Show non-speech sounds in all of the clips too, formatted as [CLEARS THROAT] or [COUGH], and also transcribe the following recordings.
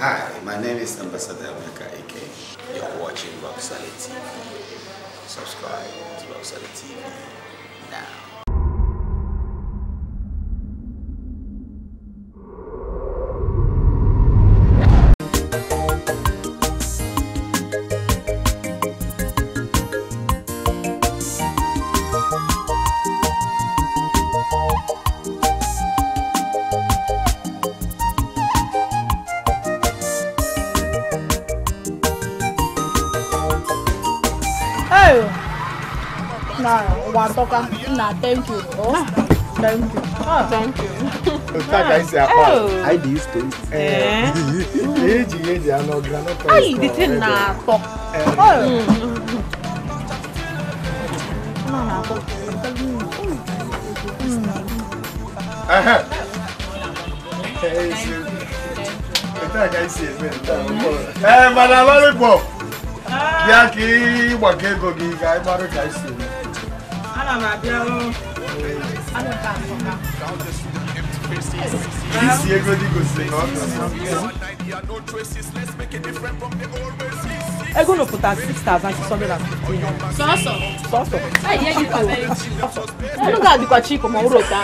Hi, my name is Ambassador Ameka Ike. You're watching Rock Solid TV. Subscribe to Rock Solid TV now. na thank you. Ah. Ah. Oh, thank you. Oh, thank you. Otaka is a part. I oh. do use toast. Eh. Eji eji ano granola toast. Ai, the thing na talk. Oh. No, na talk. Aha. Otaka is a man. Eh, madam, lollipop. Ya ki wa ke go ah. gi ga maru ga isi. This year, go go sing. I'm gonna put at six thousand six hundred and fifty. Sọ́sọ̀. Sọ́sọ̀. Ẹ̀yẹ́ yìí kò wẹ̀ jù. Ẹnu gàdí kọ̀ chi kò mọ̀ wúrò ta.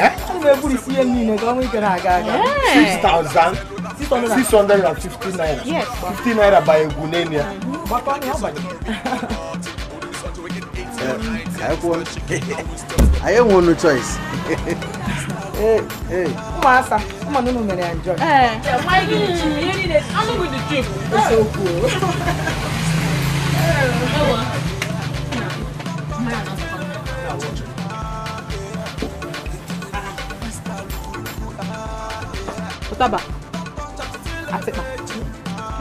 Ẹ́ ẹnu bẹ búrú sí ẹni nìyẹn kan wíkẹ́ náà gà gà. Six thousand six hundred and fifty naira. Fifty naira by egunenia. Bàbá mi á bàjẹ́. [LAUGHS] I won. one no choice. [LAUGHS] Hey, hey. Masa, come on, no man, enjoy. Eh. Why you need to? You need it. I'm going to trip. It's so cool. Taba. Atikpa.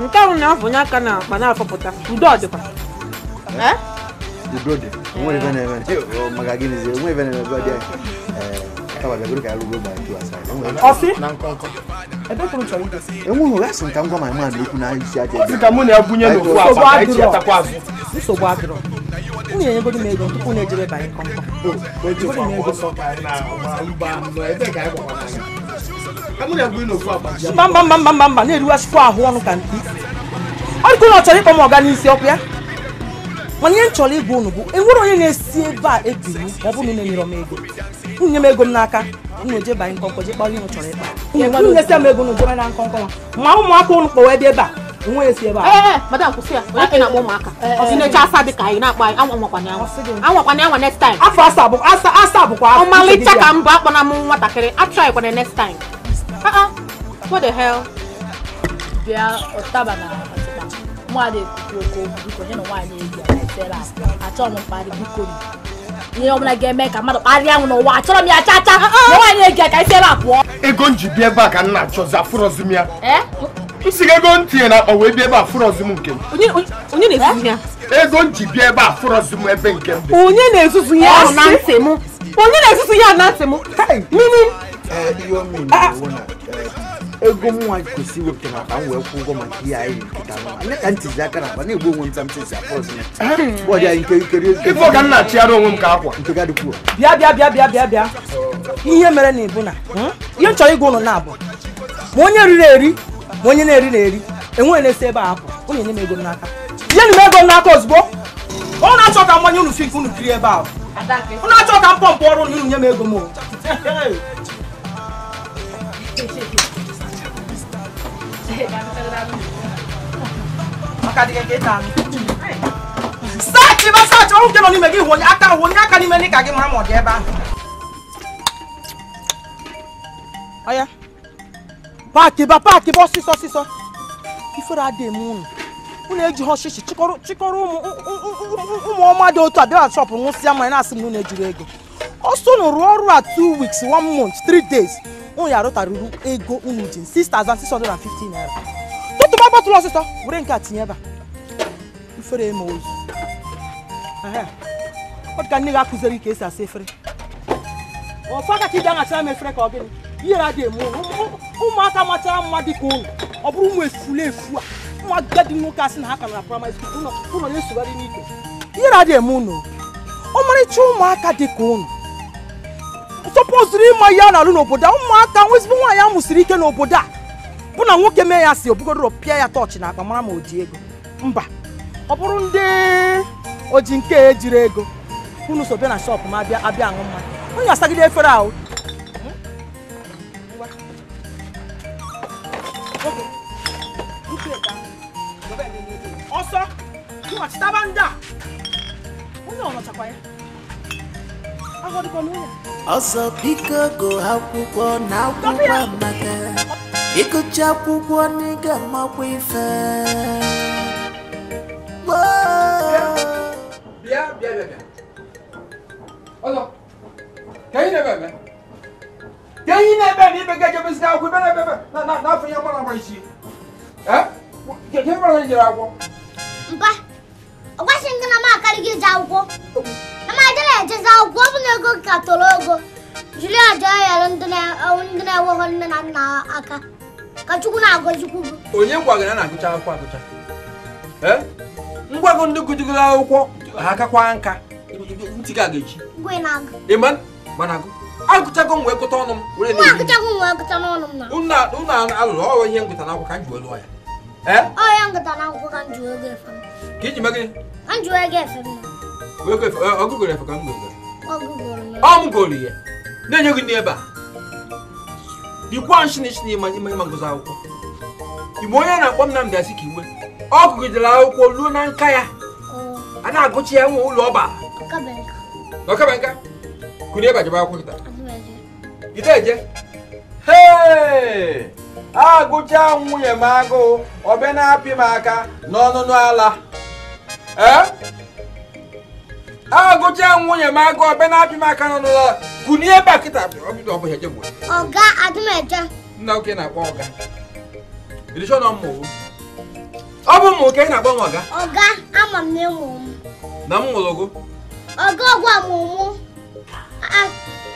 Nke ahụ na-afọnye aka na akpa na-afọpụta. Udo ọ dịkwa. Eh? Udo dị. nweghị maka gịnị zie nwe ebe na-ebe dị enweghị gasị nka ọ ma ma na-ekwu na isi aja nsogbu adịrọ unu enyegodi m ego tupu na ejebe banye kọmkọm mba mba mba mba mba na-eriwasịkwa ahụ ọnụ ka mkpi ọ dịka ụlọ chọrọ ịkpọ m ọga n'isi ọ ya mana ihe m chọrọ ịgwa unu bụ enwere onye na-esi ebe a ebiri ma ọ bụrụ enyere m ego nwunye m ego n'aka unu banye nkọnkọ je kpaa ihe m chọrọ ịkpa nwunye esi m ego unu jebe na nwa ma ụmụaka ụnụ kpọwa ebe ebe a onwe esi ebe a eh, eh, madam kwụsị ya onye na-akpọ ụmụaka eh, ọsị na-eche asa dị ka anyị na-akpọ anyị anwakwana anwakwana next time afọ asa asa asa bụkwa ọmalịcha ka mbụ na butere achọrọ m mkparị biko ihe ọbụla ga-eme ka mmadụ ya nwaanyị a pụọ ego m ji ebe a ka m na-achọ ya m si ego m tinye na akpa wee bịa ebe a nke m ego m ji ebe a ebe nke m onye na-ezuzu ya na onye na-ezuzu ya ah, ah. na ntị eh, m ego m nwa kwesị iwe maka m wee kwụ ụgwọ maka ihe anyị ka na akpa na-egbu onwe m m bịa bịa ihe mere na ịbụ hmm? ihe nchọrọ ịgwa ụlọ na-abụ ma onye riri eri ma onye na-eri na-eri enweghị na-esi ebe a apụ ụnụ enye m ego n'aka nye m ego n'aka ozugbo ọ na-achọ ka nke unu kiri ebe unu achọ makadi keke tami sachi ba sachi ọrụ nke nọ n'ime gị hụ aka hụ onye aka n'ime n'ịka gị mara ma ọ dị ebe ahụ ọya paaki ba paaki ba ọsịsọ ọsịsọ ifere adịghị m unu unu eji ha ọchịchị chịkọrọ um, um, um, um, um, shọpụ nwụsịa mmanya na-asị m na unu ejiri ego ọsọ unu rụọ ọrụ a two weeks one month three days un yàrá taruru ego unu jin six thousand six hundred and fifteen naira tutu bá bọ́tulọ ọsịsọ were nke a tinye ebe a ifere eme ozu ọ dị ka nne gị akụziri ka esi asa efere ọfọ aka ka ị ga-aghachara m efere ka ọ gịnị ihere adị eme ụmụaka machara mma dị ka ụlọ ọ bụrụ ụmụ efule efu a ụmụ agadi nwoke asị na ha ka na praịmarị skuul ụlọ na-esogharị n'ike ihere adị eme ụnụ ọmarịcha ụmụaka dị ka ụnụ tọpụzụrụ ịma ihe a na-alụ n'obodo a ụmụaka nwa ya musiri ike n'obodo a bụ na nwoke mee ya si obugodoro opia ya tọọchị na akpa ma oji ji ego mba ọ bụrụ ndị oji nke ejiri ego unu so na shọpụ ma abịa abịa efere ahụ ọzọ biko go akwụkwọ na akwụkwọ amaka ịgụcha akwụkwọ n'ịga makwa ife bịa bịa bịa ọzọ na-ebe na-ebe ibe ga ejebezita akwụkwọ ibe na-ebe na afọ ya gbara agba isi ee ihe gbara enweghị nne na nna aka ka chukwu na-agọzikwu onye gwagara na-agụcha akwụkwọ agụcha ngwago ndị gụjigoro akwụkwọ akakwa nka ntị gị aga echi ịma mana agụ agụchago m wee ọnụ m unu alụrụ ọrụ ihe ngụta na akwụkwọ ka m ji wee ya na ka iji efe ka m na-enye gị ndị ebe dịkwa nchinchi na ịma akwụkwọ igbo onye na-akpọ Nnamdi Azikiwe ọ gụgidere akwụkwọ ruo na nka ya oh. a na-agụchi ya nwe ụlọ ọba ọkabenka kụnye ebe akwụkwọ kịta agụcha nwunye m agụ ọbịa apị m aka n'ọnụnụ nwunye m agụ ọbịa na-apị m aka n'ọnụnụ ala e? ọga adịmeje nna oke na-akpọ ọga irichọ na mmụwụ ọ bụ mmụ ka ị na-akpọ m ọga ọga ama m na ịmụ m na m mụrụ gụ ọga ọgwụ ọmụmụ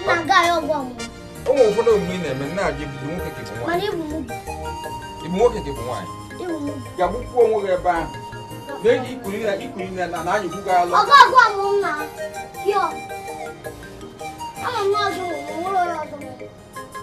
na-aga ya ọgwụ ọmụmụ ụmụ ụfọdụ omume ị na-eme na-abịa bụ nwoke ka bụ nwaanyị ibu nwoke ka ibu nwaanyị ga-agbụkwuo onwe gị ebe ahụ na-eji ikuri na ikuri na na na anyịkwu gị alụ ọga ọgwụ ọmụmụ na pịọ ama m na ọzọ ụmụ ụlọ ọzọ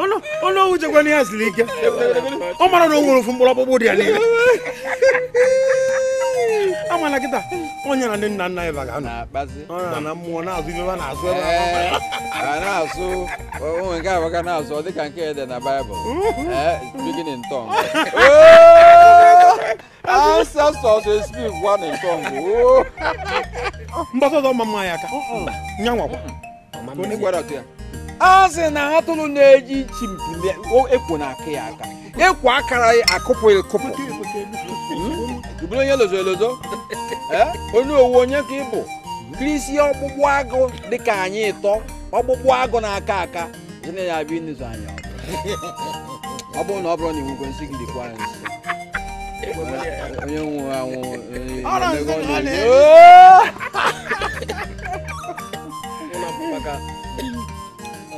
ọnụ ọwụ jekwana ya siri ike ọ mara na o nwere ofu mkpụrụ ọkpụkpụ dị ya niile ama na kịta onye na ndị nna nna ya baga ọ na mmụọ na-azụ ibe ba eh, na-azụ ebe a na-azụ onwe nke abaka na-azụ ọ ka nke dị na baịbụl speaking in tongue ah, ancestors speak one in tongue oh. mgbasa ọzọ mma mma ya aka nyanwakwa onye gwara ya a na atụrụ na-eji chimpi ekwo na aka ya aka ekwo akara akụpụ ekụpụ hmm? bụrụ onye lozo elozo [LAUGHS] eh? onye owu onye ka ịbụ kirisi ọgbụgbụ agụ dịka anyị ịtọ ọgbụgbụ agụ na-aka aka zina ya abịa ịnụzụ anya ọ bụrụ na ọ bụrụ na iwu nsị gị dịkwa nsị onye nwụrụ anwụ [LAUGHS]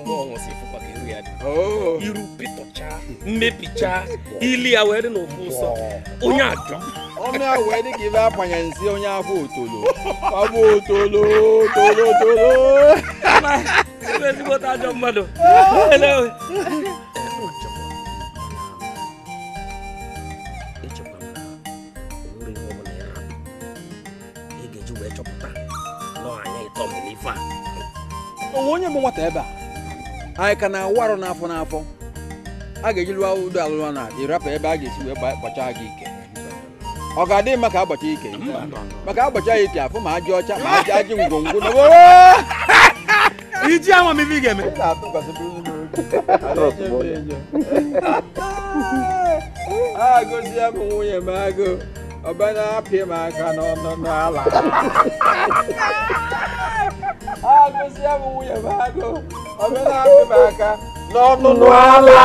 mgbe ọ nwụsị ịfụkwata iru ya dị oh. iru pịtọchaa mmepichaa ili awere n'ofu ụsọ onye ajọ ọnụ dị ka ibe agbanye onye afọ otolo afọ otolo tolo tolo onye bụ nwata anyị ka na-awụ n'afọ n'afọ a ga-eji lụọ udo alụlọ na ịrapụ ebe a ga-esi wee kpọcha gị ike ọ ga-adị mma ka agbacha ike maka agbacha ya ike afụ ma ajị ọcha ma ajị ajị ngwongwo [LAUGHS] [LAUGHS] iji amamihe ga-eme agụzie [LAUGHS] m nwunye m agụ ọbana apịa m aka agụsị ya bụ nwunye na-agụba aka n'ọnụnụ ala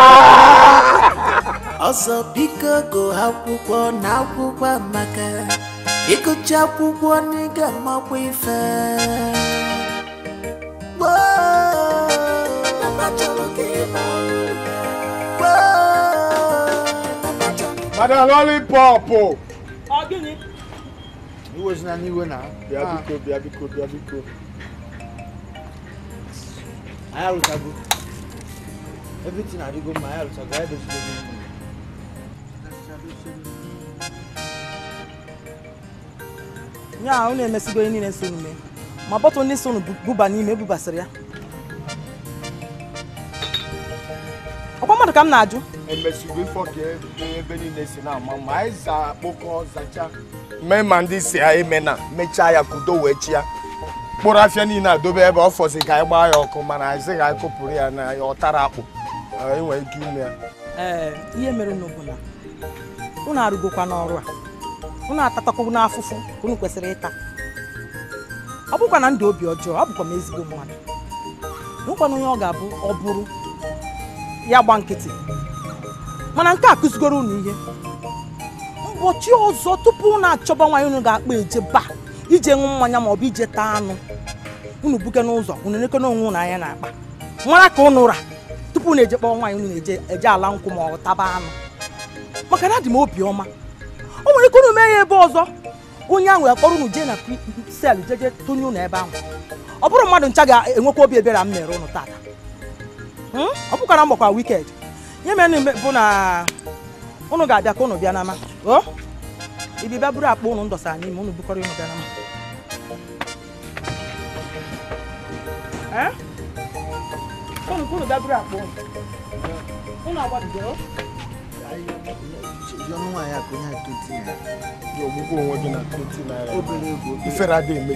ọsọ biko gụ akwụkwọ na akwụkwọ amaka ịgụcha akwụkwọ n'ịga makwa ife Madam Lollipop! Ọ gịnị? Iwe si na n'iwe na bịa biko ah. bịa biko biko anyị arụchago everything adịgo mma anyị arụchago anyị dozidogo mma ya ahụ na-emesigo niile sonu mee ma bọtụl ndị buba n'ime ebubasịrị ya ọkwa mmadụ ka m na-ajụ emesigo ife ebe niile si na-ama ma anyị za akpụkọ zacha mee ma ndị si ya emena mechaa ya kudo wee mkpụrụ afịa niile adobe ebe ọ fọzi ka anyị gbaa ya ọkụ mana anyị ga ka ya na ọ tara akpụ enwere ike ime ya ihe mere n'obu na ụnụ arụgokwa n'ọrụ a ụnụ atatakwu n'afụfụ ka kwesịrị ịta ọ bụkwa na ndụ obi ọjọọ ọ bụkwa m ezigbo mmadụ nwekwana onye ọ ga-abụ ọ bụrụ ya gba nkịtị mana nke a kụzigoro unu ihe ụbọchị ọzọ tupu unu achọba nwanyị unu ga-akpa eje baa ije ṅụ mmanya maọbụ ije taa anụ unu buke n'ụzọ unu nke onwe unu anya na akpa mara ka ụnụ ụra tupu na eje kpọọ nwaanyị unu eje ala nkwụ ma ọ taba anụ maka na adị m obiọma o nwere ike unu mee ya ebe ọzọ onye ahụ akpọrọ unu jee na sel jeje tụnye unu ebe ahụ ọ bụrụ mmadụ ncha ga-enwekwa obi ebere m mere ụnụ tata hmm? ọ bụkwara mgbakwa wiked ya mere bụ na ụnụ ga-abịa ka ụnụ bịa n'ama ibi ba buru akpọ unu ndọsa anyị ma unu bukọrọ unu gara m unu kuru ba buru akpọ unu unu agbadidoro ọnụ nwaanyị akụ onye a 20 naira dị ọgwụgwọ onwe gị na 20 naira obere ego ifere adịghị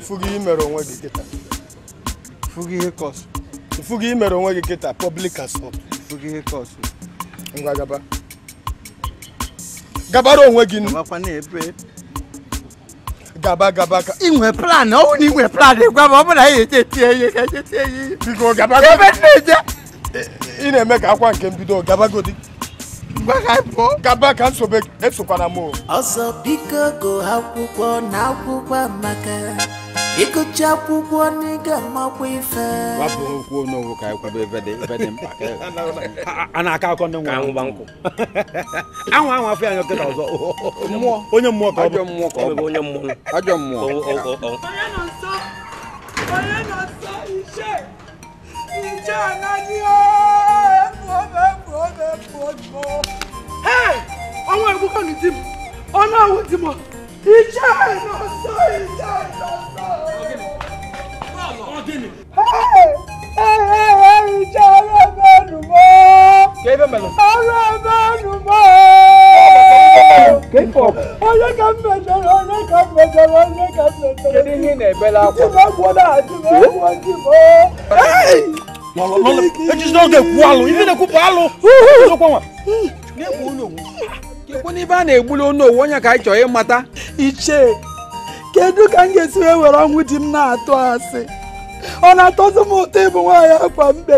fugo imere onwe gị kịta fugo ihe kọsụ fugo imere onwe gị kịta public assault fugo ihe kọsụ ngwa gaba gabara onwe gị gaba gaba ka inwe plan ọwụ na inwe plan gwa m ọ bụ na ya echetie ihe ka echetie ihe biko gaba gaba ị na-eme ka akwa nke mbido gabagodi gaba ka nsobe esokwana m ọzọ biko go akwụkwọ na akwụkwọ amaka ịgụcha akwụkwọ n'ịga makwa ife wapụ okwu onye owu ka ịkwado ebe dị ebe dị mkpa e [LAUGHS] a na-aka akọ ndị nwa anwụgba nkụ [LAUGHS] anwụ anwụ afọ ya nyọkịta ọzọ mmụọ onye mmụọ ka ọ bụ mmụọ ka ọ bụ onye mmụọ ajọ mmụọ onye nọ nsọ onye nọ nsọ iche iche anaghị ooo ọwọ́ ẹ̀kú kàn ní tìmù ọ̀nà àwọn tìmù ìjà iná sọ ìjà iná sọ. ìjà ọlọ́mọdù mọ́ ọlọ́mọdù mọ́. Onye ka m mejọrọ, onye ka m mejọrọ, onye ka m mejọrọ. Kedu ihe ị na-ebela akwa? Ji m agwọ na-adị m agwọ ji m. ejizi oge kwuo alụ ife na-ekwupụ alụ kekwe n'ibe a na-egbuli onu owu onye ka anyị chọrọ ịmata ichie kedu ka m ga-esi wee were ọnwụ di m na-atụ asị ọ na-atọzi m ụtọ ịbụ nwaanyị akwa mbe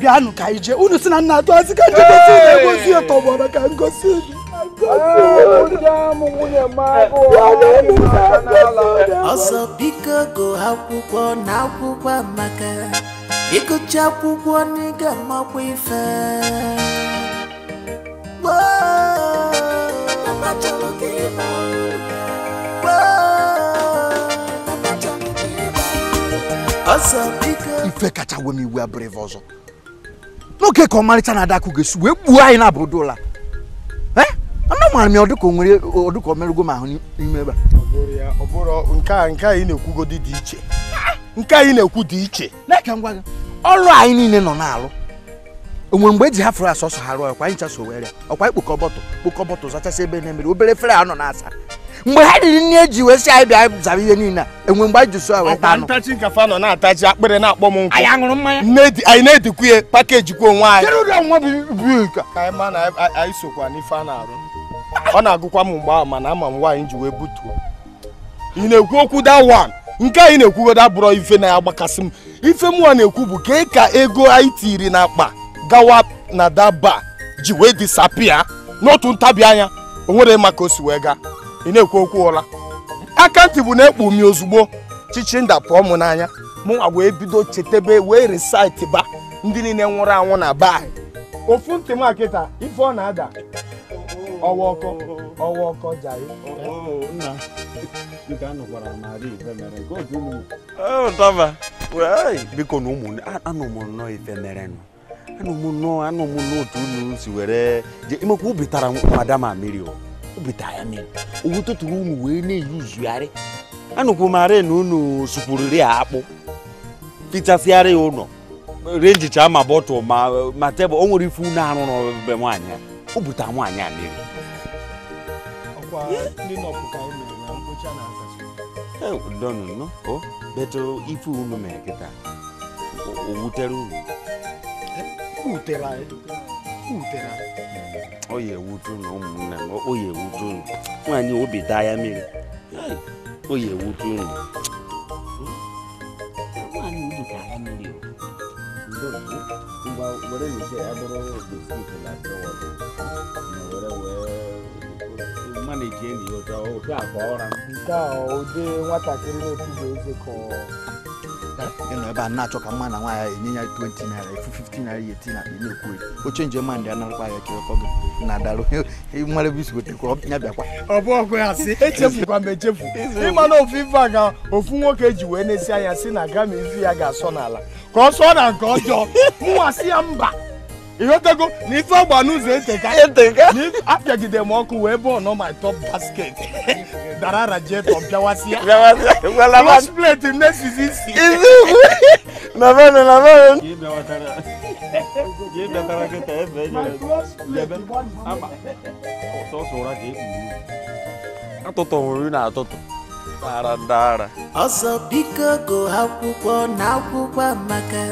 bịanụ ka ije unu si na nna atụ asị ka njegosi ya tọgbọrọ ka ngosi unu ọzọ biko go akwụkwọ na akwụkwọ maka. ịgụcha akwụkwọ n'ịga makwa ife ife kacha we m iwe abụrụ ife ọzọ n'oge ka ọmarịcha na-ada akụ ga-esi wee gbuo anyị na abụrụ dola eh? mara m ya ọdụka nwere ọdụka o merụgo m ahụ n'ime ebe a nke a ị na-ekwugodi dị iche nke anyị na-ekwu dị iche na-eke ngwa gị ọrụ anyị niile nọ na-alụ onwe mgbe eji hafụrụ asọ asọsọ ha rụọ ọkwa anyị chasọ were ọkwa ikpokọ bọtụ kpokọ bọtụ zachasị ebe na-emere obere efere a nọ na-asa mgbe ha riri nne eji wee si anyị bịa zara ihe niile a enwe mgbe anyị ji so weta anụ ntachi nkafe anọ na-atachi akpịrị na-akpọ m nkwụ anyị ṅụrụ mmanya anyị na-edikwu ya pakeji kwa onwe anyị ka sokwa n'ife a na-arụ ọ na-agụkwa m mgbe ahụ mana ama m nwaanyị ji wee butuo ị na-ekwu okwu da nke anyị na-ekwugodo abụrọ ife na-agbakasị m ife mụwa na-ekwu bụ ka ka ego anyị tiri n'akpa gawa na daba ji wee disapia n'otu ntabi anya o nwere maka o si wee gaa ị na-ekwu okwu ụla aka ntị bụ na-ekpu ozugbo chichinda pụọ m n'anya mụnwa wee bido chetebe wee risaịtị ba ndị niile nwụrụ anwụ na ba ofu ntị m akịta ife ọ na-ada ọwa ọkọ ọwa ọkọ jai biko na ụmụ anụ m nnọọ ife merenụ anụ m nnọọ anụ m n'otu unu si were je imekwa ubitara madama mmiri ubitara ya mmiri Owu owutụtụrụ unu wee na-eyi uzugharị anụkwụ mara na unu sụkwuriri akpụ fichasịara ya ụlọ renjicha ma bọtụl ma tebụl o nwere ife unu arụ n'ọbe nwaanyị o butara nwaanyị a mmiri ncha na azacha donu o beto ife unu mere kịta wutere unu wutere eh, ewute eh, unu m ewute unu nwaanyị obi daa ya mmiri o ya ewute ma na-eji enyi ya ụjọ ụjọ akwa ụra nke a ụdị nwatakịrị na-ekwughị eze ka ịnọ ebe a na-achọ ka mma na nwaanyị ya enye ya 20 naira efu 15 naira ya eti na na-ekwu oche nje ma ndị anakpa ya kewekọ gị na darụ mara ebe isi gotekwa ya bịakwa ọ bụ ọgụ ya sị echefukwa m echefu ịma na ofu ife a ga ofu nwoke e ji wee na-esi anya si na gama izu ya ga-asọ n'ala ka ọ sọọ na nke ọjọọ mụnwa si ya mba ịghọtago na ife agba n'ụzọ e eteka apịagide m ọkụ wee bụ ọnọ my top basket [LAUGHS] dara rajetọ bịawasịa plus plate nesizi isi dara dara e e biko go akwụkwọ na akwụkwọ amaka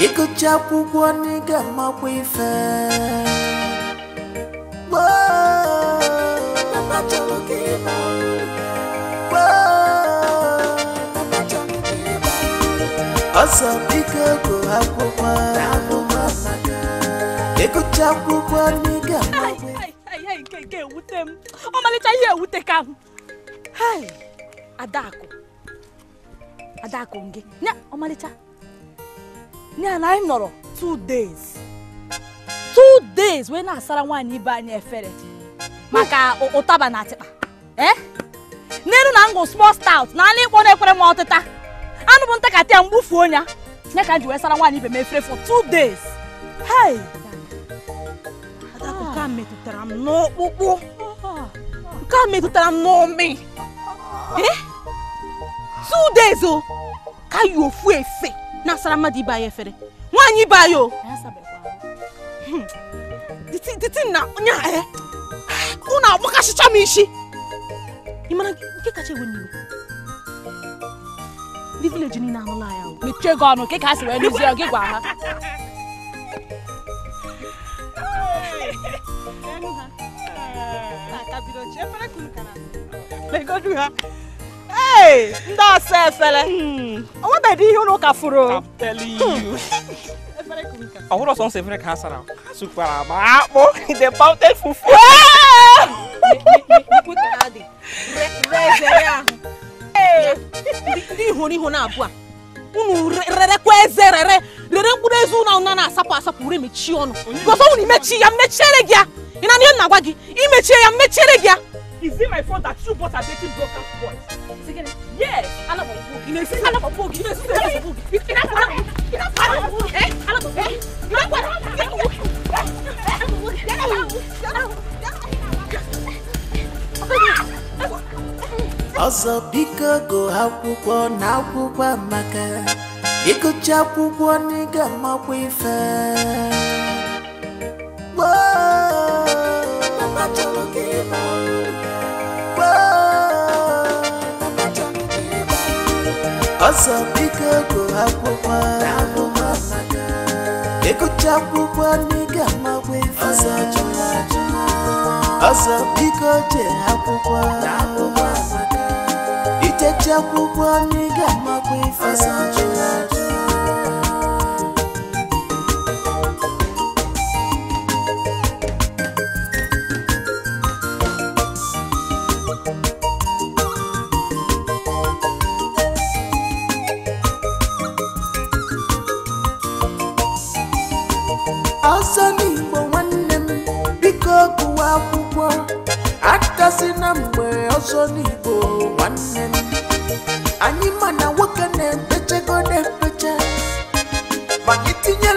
ịgụcha akwụkwọ ị ga-amakwa ife ọsọ biko ego akwụkwọ ịgụcha akwụkwọ ị ga-amakwa nke nke ewute m ọmalịcha ihe ewute ka Hai, adako. Adako gị ya ọmalịcha na na im two days two days wee na-asara nwaanyị ibe anyị efere maka ụtaba na atịkpa ee eh? n'elu na ngụ small stout na anụ ịkpọ na-ekwere m ọtịta anụ bụ ntakatị a mgbufuo ya ya ka m ji wee sara nwaanyị ibe m for two days hei akụkọ a metụtara m n'ọkpụkpụ nke a metụtara m n'ọmị eh? two days o oh. ka yi ofu efe n'asara mmadụ ibe anyị efere nwaanyị ibe anyị o dịtị hmm. na onye a ụnụ eh. agbakasịcha m isi ị mara nke kacha ewe n'iwe ndị vileji niile anụla ya o mechie gị ọnụ ka a sị wee lụzie gị gwa ha Legodu ha ee ndị ọsọ efere hmm. o nwebeghị ihe ụlọ ụka furu ọhụrụ hmm. ọsọ nsọ efere ka ha sara sukwara agba akpụ the fufu ndị na-abụ a unu rerekwa eze rere rere mkpụrụ eze ụlọ ụna na-asapụ asapụ ure mechie ọnụ gọzọ unu imechi ya mmechiere gị ya ị na ihe m na-agwa gị imechi ya mmechiere gị ya Is it my fault that you both are dating broken boys? Second, yes. I love a You know, I love a book. You know, I love a book. You know, I love a book. I love a book. You know what? I love a book. I love a book. Ọsọ biko go akwụkwọ na akwụkwọ amaka ịgụcha akwụkwọ n'ịga amakwa ife wazabika kuhakoma ekucakukwa niga mawevaazabika tehakukwa ite cakukwa niga mawevaa mgbe ọzọ n'igbo nwanne m anyị ma na nwoke na-empechego na-empecha maka itinye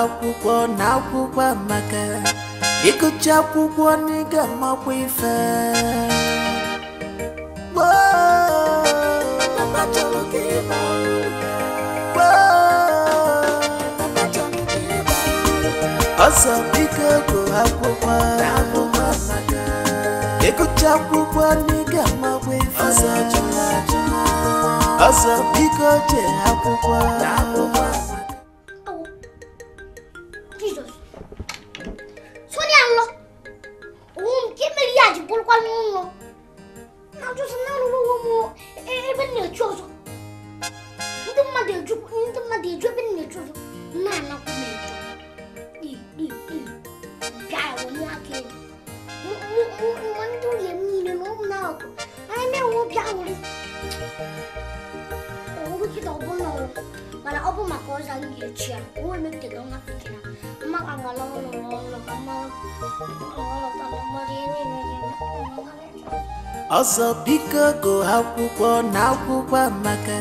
akwụkwọ na akwụkwọ amaka ịkụcha akwụkwọ n'ịga makwa ife ọsọ biko bụ akwụkwọ na akwụkwọ n'ịga makwa ife ọsọ biko na akwụkwọ Oğlu ki de bununla Bana o bu makoza geçiyor. Bu emekte de ona fikir. Ama kangala onu oğlu ama Ọzọ biko akwụkwọ na akwụkwọ amaka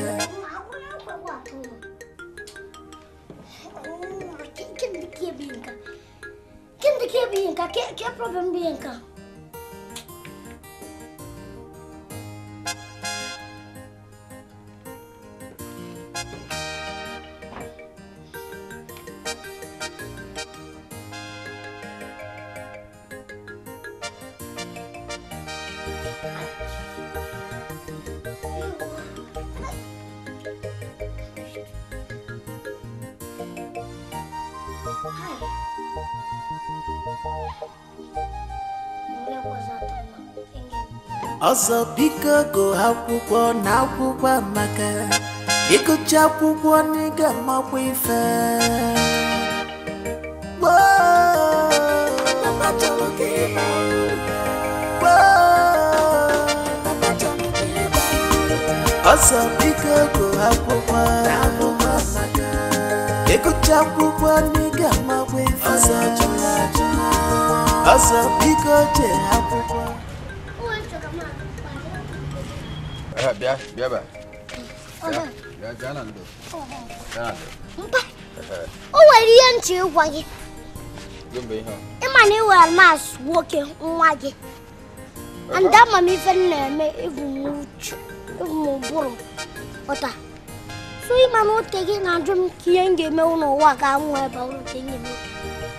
ọsọ biko go akwụkwọ na akwụkwọ amaka ịgụcha akwụkwọ n'ịga makwa ife ọsọ biko go akwụkwọ na akwụkwọ amaka ịgụcha akwụkwọ n'ịga makwa ife ọsọ biko jee akwụkwọ biya biya ba biya biya nan do oh, oh. biya nan do mpa eh, eh. o wari ya nche gwa gị gombe ihe ịma na iwere mas nwoke nwa gị and ama m ife m na-eme ịbụ m uchu ịbụ m ụbụrụ ọta so ịma na ote gị na-ajụ m ka ihe m ga-eme n'ụwa ga-anwụ ebe ọrụ ka ihe m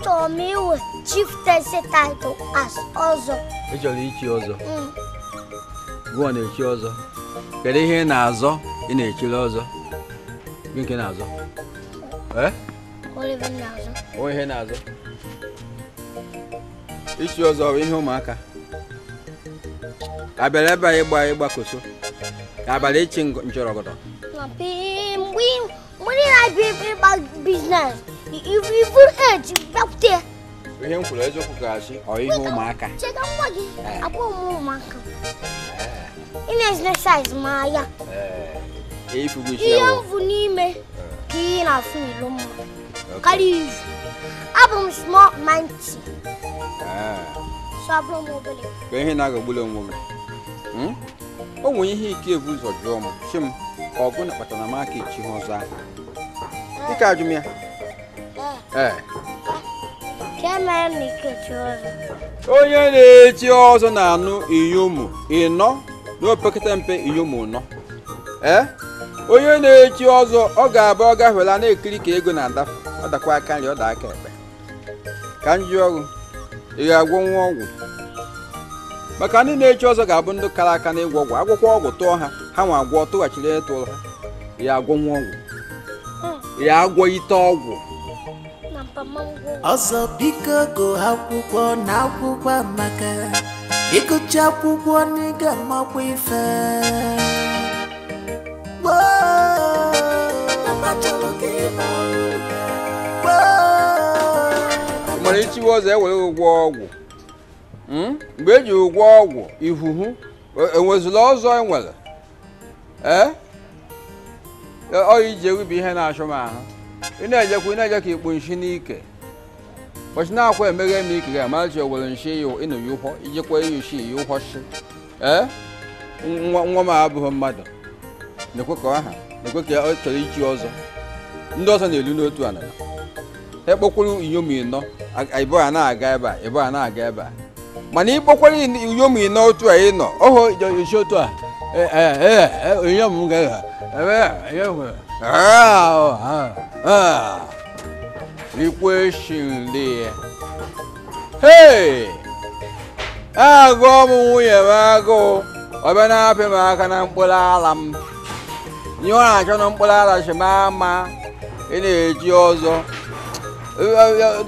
achọrọ m iwe chiftesi title as ọzọ ị chọrọ ichi ọzọ ọ na-echi ọzọ kedu ihe na-azọ ị na-echiri ọzọ nke na-azọ onwe na-azọ na bụ ihe ụmụaka ka abịara ebe a ịgba ịgbakoso ka abalị mgbe ị na Evil Ed, Belter. Ihe m kwuru eziokwu ga-asị ọ ihe ụmụaka. Chega nwa gị, abụ m ụmụaka. Ị na-ezine saiz m anya. Ihe m bụ n'ime ka e na-afụ n'ilo mma. Karịa izu. Abụ m É. manti. So abụrụ m obere. Ka ihe na-agagbula onwe gị. O nwere que é ebu ụzọ jụọ m, sị m, ọgụ na kpatara m aka echi ha ọzọ ahụ. Dịka ajụm ya. onye na-echi ọzọ na-anụ inyomu ịnọ n'opekata mpe inyomu nọ ee onye na-echi ọzọ ọ ga-abụ ọ gafela na-ekiri ka ego na-adafe ọ dakwa aka nri ọ da aka ekpe ka m ji ị ga-agwọ nwa ọgwụ maka ndị na-echi ọzọ ga-abụ ndị kara aka n'ịgwọ ọgwụ agwụkwọ ọgwụ tụọ ha ha nwa agwọ tụghachiri ịtụ ha ya agwọ nwa hmm. ọgwụ ya agwọ ite ọgwụ ọzọ biko gụọ akwụkwọ na akwụkwọ maka ịgụcha akwụkwọ n'ịga makwa ife mara ichiwe ọzọ ewere ụgwọ ọgwụ hmm? mgbe eji ụgwọ ọgwụ ihuhu enwezụla e ọzọ enwere ee ọ ije ewibi ihe na-achụ m ahụ ị na-ejekwa ị na-ejekwa ikpu nshi n'ike ụbọchị na-akwa emeghe m ike ga-amachi owere nshi ịnụyi ụkwọ ijikwa iyushi iyi ụkwọshi ee nwa m abụghị mmadụ na-ekwe ka aha na-ekwe ka ọ chọrọ ichi ọzọ ndị ọzọ na-elu n'otu ala ekpokwuru inyom ịnọ ịbụgha na-aga ebe a ịbụgha na-aga ebe a mana ịkpokwara inyom ịnọ otu a ịnọ oho isi otu a onyinye m ga nwere. Ah, ah, ah. ikwe shinlie hei agụ ọmụ nwunye m agụụ ọbịa na-apị m aka na mkpụrụ ala m ihe ọ na-achọ na mkpụrụ ala chi m ama ị na-eji ọzọ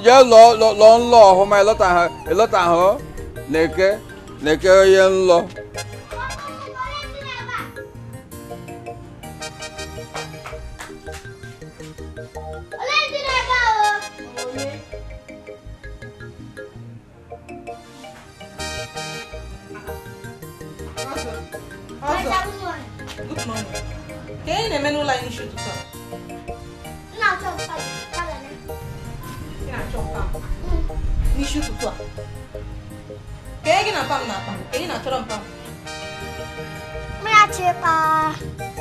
jee lụọ nlọ ọhụma ịlọtahụ na eke na eke onye nlọ ụlọanyị n'isi ụtụtụ n'isi ụtụtụ a kee gị na pam na akpa ka ị na-achọrọ mpam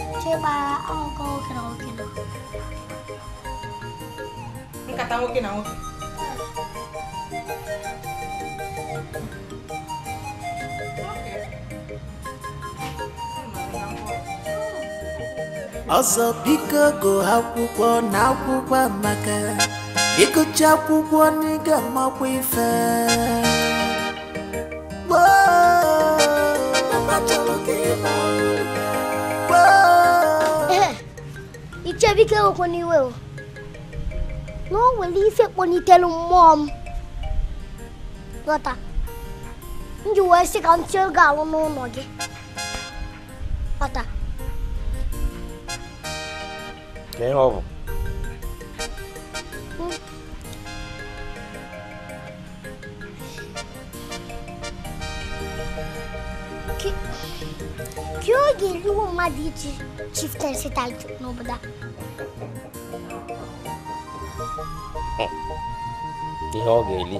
nwoke na na nkata nwoke na nwoke ọzọ biko gụ akwụkwọ na akwụkwọ amaka ịgụcha akwụkwọ n'ịga makwa ife ichebike okwu n'iwe na o nwere ife kpọlitere mmụọ m ghọta m ji wee sị ka m tie oge alụ n'ụlọ gị ghọta Nem ovo. Hum. Kö köye geri esse için çiftler setel da. Ihe ọ ga-eli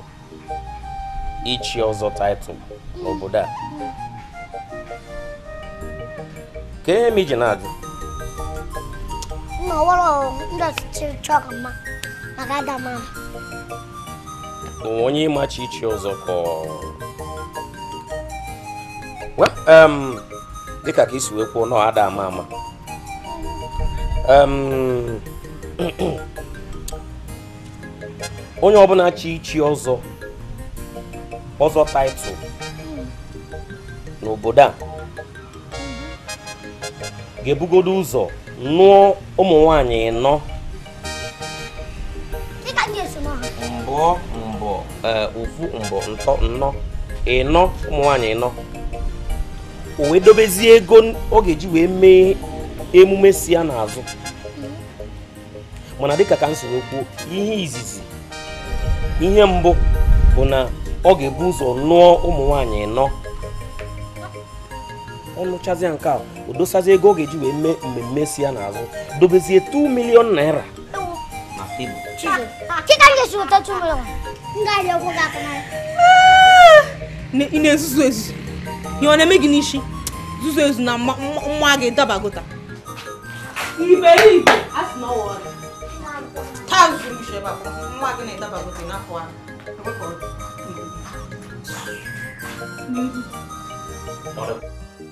ichi ọzọ taịtụl n'obodo a ka ihe ọwụrụ ndọchịchị chọrọ mma maka ahụ. onye ịmachi ichi ọzọ dịka ka isi wee kwuo nọ ada ama ama [CLEARS THROAT] onye ọbụna chi ichi ọzọ ọzọ taịtụl n'obodo a mhm. ga-ebugodo ụzọ nụọ ụmụ nwanyị nọ mbọ mbọ ofu mbọ ntọ nnọ ịnọ ụmụ nwanyị nọ o wee dobezie ego ọ ga-eji wee mee emume si ya n'azụ mana dịka ka m soro kwuo ihe izizi ihe mbụ bụ na ọ ga-ebu ụzọ nụọ ụmụ nwanyị nọ ọ lụchazie nke a o dosazie ego ọ ga-eji wee mee mmemme si ya n'azụ dobezie 2 naira na tebụl ezuzu ọ na-eme gị n'isi zuzu ezu na nwa gị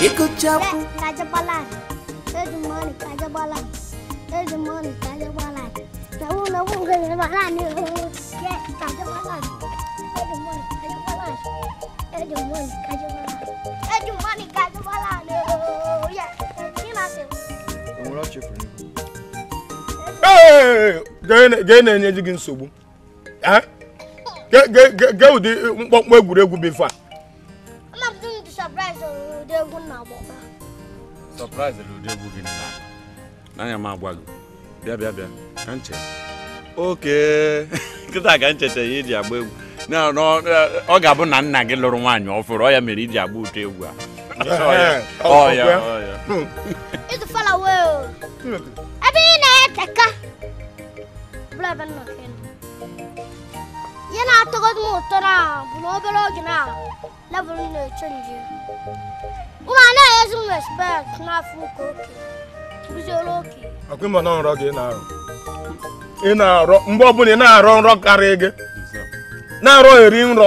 Ikuchapu. Kajabalan. There's money, Kajabalan. There's money, Kajabalan. The one who goes to Balan, kaca Kajabalan. There's money, Kajabalan. There's money, Kajabalan. There's money, Kajabalan. Yeah, he must have. I'm not your friend. Hey, gee na-enye gị nsogbu gee ụdị mkpọmkpọ egwuregwu bụ ife a surprised ụdị egwu gị n'anya m agwa gị bịa bịa bịa ka nche oke [LAUGHS] ka ncheta ya iji agba egwu ọ ga-abụ na nna gị lụrụ nwaanyị ọfụrụ ọ ya mere iji agba ụtọ egwu a ihe na-atọgodi m ụtọ na bụ na obere oge na na Ụmụ anaghị ezu respect n'afọ ụka oke. Uzoro oke. Ọkwa na nrọ gị ị na na-arọ mgbe ọbụla ị na-arọ nrọ karịa gị. Na-arọ eri nrọ.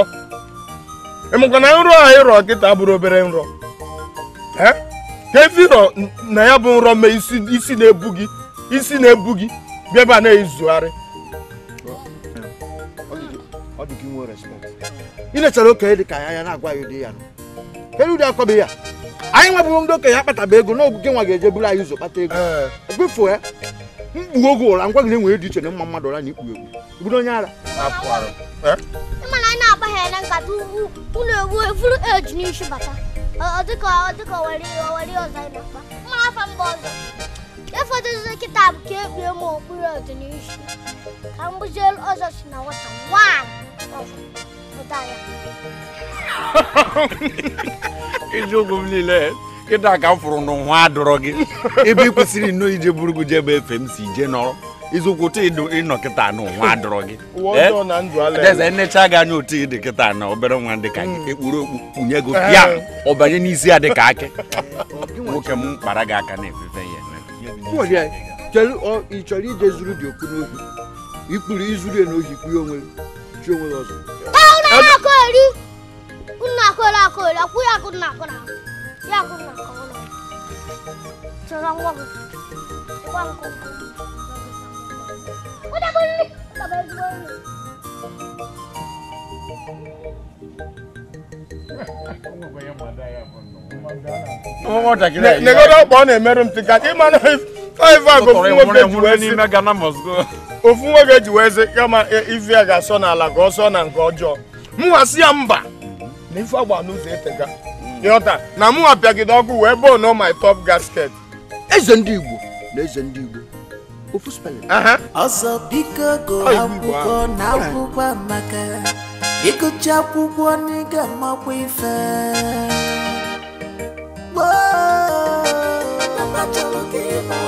Ịmakwa na nrọ a ịrọ kịta bụrụ obere nrọ. Ka na ya bụ nrọ ma isi na-ebu gị isi na-ebu gị na-ezugharị. Ị lechara dị ka ya ya na anyị nwebụrụ ndị okenye akpataba ego n'oge nwa ga-eje bụrụ anyị ụzọ kpata ego ebufu ya mkpu oge ụra ngwa gị na-enwere dị iche na mma mmadụ ụra na ikpughe egwu bụrụ onye ara eh? mana anyị na-agbagha na nkata unu ewu evuru eji bata ọzọ bụ ka ekpue m okpuru ọdịnihu bụzie ọzọ si na nwata eziokwu m niile ịdọ aka m fụrụ n'ụwa dọrọ gị ebe ị kwesịrị nnọọ ije buru gị efe m si ije nọrọ iziokwu otu ịnọ kịta n'ụwa gị eze eh? nnecha gị anya otu ịdị kịta na obere nwa gị hmm. ekpuru okpu kpunye gị ya eh. ọ n'isi ya akị nwoke m kpara gị aka na-efefe ya ije zuru ya n'ohi Kunna kola kola kuya kunna kola. Ya kunna kola. Sarang wag. Wang ko. Wala ko ni. ọ na-emerụ ofu nwoke ji wee sị kama ife ga-asọ n'ala ka ọ na nke ọjọọ mụwa si ya mba na ife agba n'ụzọ etega ịghọta na mụ apịagide ọkụ wee bụọ nọ my top gasket eze ndị igbo na eze ndị igbo ofu spelling ọsọ biko go akwụkwọ na amaka ịgụcha akwụkwọ n'ịga amakwa ife gboo mama chọrọ gị ịma